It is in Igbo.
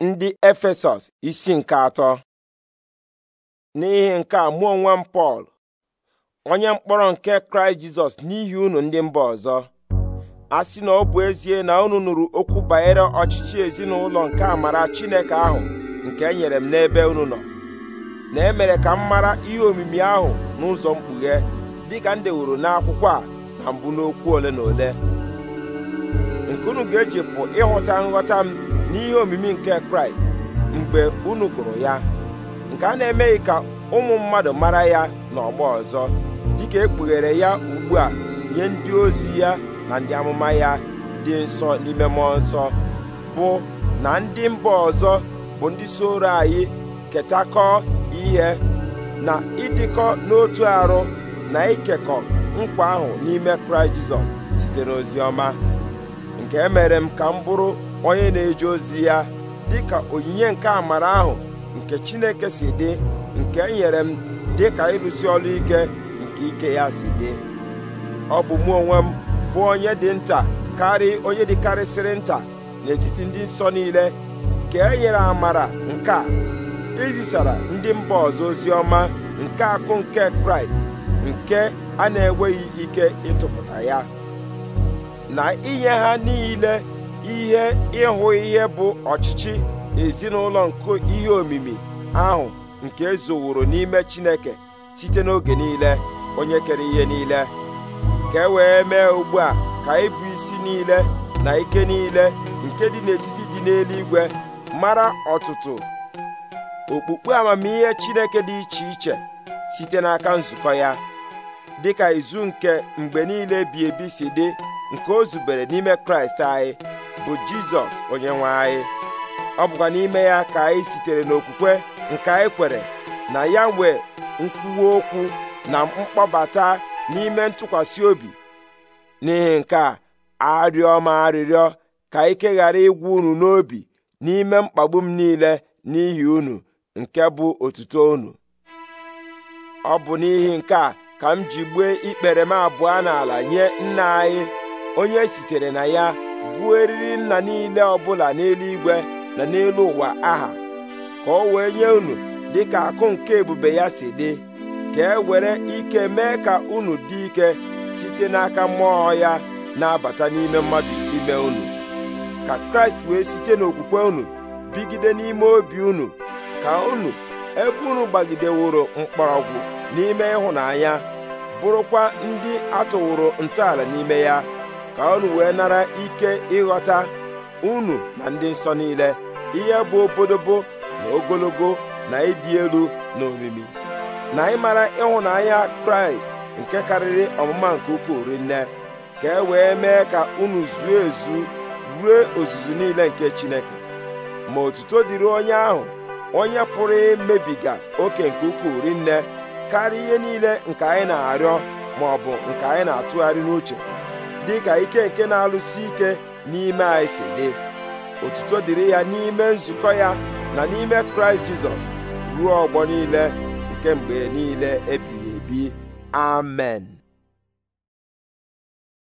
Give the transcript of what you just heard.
ndị efesọs isi nke atọ n'ihi nke a mụọ onwe m pọl onye mkpọrọ nke kraịst jizọs n'ihi unu ndị mba ọzọ a sị na ọ bụ ezie na unu nụrụ okwu banyere ọchịchị ezinụlọ nke amara chineke ahụ nke e nyere m n'ebe unu nọ na emere ka m mara ihe omimi ahụ n'ụzọ mkpughe dịka m dewuru n'akwụkwọ a na mbụ n'okwu ole na ole nke unu ga ejipụ ịghọta nghọta m n'ihe omimi nke kraịst mgbe unu gụrụ ya nke a na-emeghị ka ụmụ mmadụ mara ya n'ọgbọ ọzọ dịka ekpughere ya ugbu a nye ndị ozi ya na ndị amụma ya dị nsọ n'ime mmụọ nsọ bụ na ndị mba ọzọ bụ ndị soro anyị ketakọ ihe na ịdịkọ n'otu arụ na ikekọ nkwa ahụ n'ime kraịst jizọs site n'ozi ọma nke emere m ka m bụrụ onye na-eje ozi ya dịka onyinye nke amara ahụ nke Chineke si dị nke enyere m dịka ịrụsi ọrụ ike nke ike ya si dị ọ bụ mụ onwe m bụ onye dị nta karị onye dịkarịsịrị nta n'etiti ndị nsọ niile nke e nyere amara nke a izisara ndị mba ọzọ ozi ọma nke akụ nke kraịst nke a na-enweghị ike ịtụpụta ya na inye ha niile ihe ịhụ ihe bụ ọchịchị ezinụlọ nke ihe omimi ahụ nke ezoworo n'ime Chineke site n'oge niile onye kere ihe niile ka e wee mee ugbu a ka ịbụ e isi niile na ike niile nke dị n'etiti dị n'eluigwe mara ọtụtụ okpukpe amamihe Chineke dị iche iche site n'aka nzukọ ya dị ka izu nke mgbe niile bi ebi si dị nke o zubere n'ime Kraịst anyị bụ jizọs onye nwe anyị ọ bụkwa n'ime ya ka anyị sitere n'okwukwe nke anyị kwere na ya nwee nkwuwa okwu na mkpọbata n'ime ntụkwasị obi n'ihi nke a arịọ ma arịrịọ ka ike ghara ịgwụ unu n'obi n'ime mkpagbu m niile n'ihi unu nke bụ otuto unu ọ bụ n'ihi nke a ka m ji gbue ikpere m abụọ n'ala nye nna anyị onye sitere na ya buo eriri nna niile ọbụla n'eluigwe na n'elu ụwa aha ka ọ wee nye unu dị ka akụ nke ebube ya si dị ka e were ike mee ka unu dị ike site n'aka mmụọ ya na-abata n'ime mmadụ ime unu ka kraịst wee site n'okwukwe unu bigide n'ime obi unu ka unu ebe unu gbagideworo mkpọrọgwụ n'ime ịhụnanya bụrụkwa ndị atụwụrụ ntọala n'ime ya ka unu wee nara ike ịghọta unu na ndị nsọ niile ihe bụ obodobo na ogologo na ịdị elu na omimi na ịmara ịhụnanya kraịst nke karịrị ọmụma nke ukwuu rinne ka e wee mee ka unu zuo ezu ruo ozuzu niile nke chineke ma otuto dịrị onye ahụ onye pụrụ imebiga oke nke ukwuu rinne karịa ihe niile nke anyị na-arịọ ma ọ bụ nke anyị na-atụgharị n'uche dị ka ike nke na-alụsi ike n'ime anyị si dị otuto dịrị ya n'ime nzukọ ya na n'ime kraịst jizọs ruo ọgbọ niile nke mgbe niile ebighị ebi amen